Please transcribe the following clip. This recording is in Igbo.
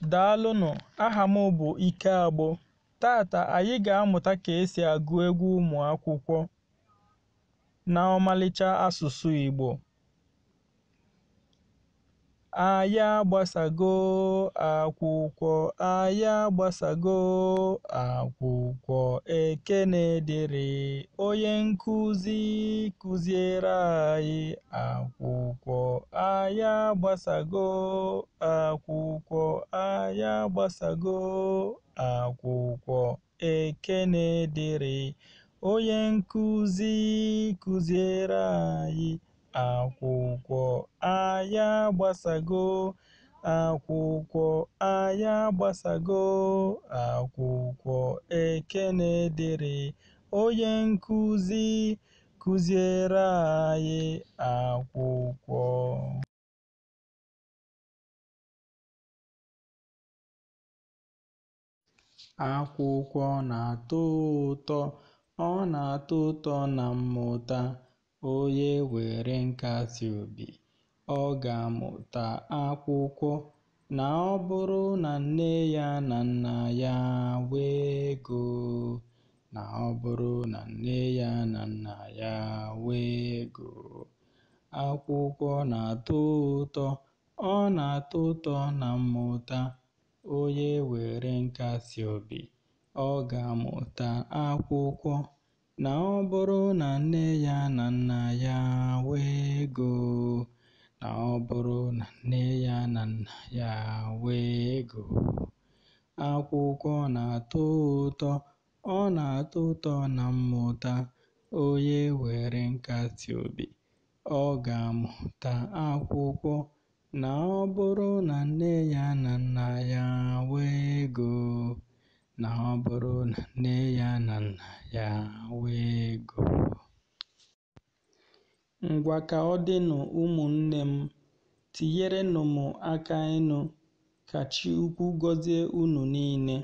Daalụnụ aha m bụ Ike Agbo. Tata anyị ga-amụta ka esi agụ egwu ụmụakwụkwọ na ọmalịcha asụsụ Igbo. Anyị agbasago akwụkwọ, anyị agbasago akwụkwọ, ekene dịrị onye nkụzi kụziere anyị akwụkwọ. Anyị agbasago akwụkwọ, a ya gbasago akwụkwọ ekene dere, onye nkuzi kuziere anyị akwụkwọ anya agbasago, akwụkwọ anya agbasago, akwụkwọ ekene dere, onye nkuzi kuziere anyị akwụkwọ. Akwụkwọ na-atọ ụtọ, ọ na-atọ ụtọ na mmụta. Onye were obi ọ ga-amụta akwụkwọ. Na ọ bụrụ na nne ya na nna ya wee ego. Na ọ bụrụ na nne ya na nna ya nwee ego. Akwụkwọ na-atọ ụtọ, ọ na-atọ ụtọ na mmụta. Onye were nkasi obi, ọ ga-amụta akwụkwọ. Na ọ bụrụ na nne ya na nna ya nwee na nne ya na nna ya ego, akwụkwọ na-atọ ụtọ, ọ na-atọ ụtọ na mmụta. Onye were nkasi obi, ọ ga-amụta akwụkwọ. Na ọ bụrụ na nne ya na ọ bụrụ na nne ya na nna ya nwee ego. Ngwa ka ọ dịnụ ụmụnne m, tinyerenụ m aka ịnụ, ka Chi ukwu gọzie unu niile.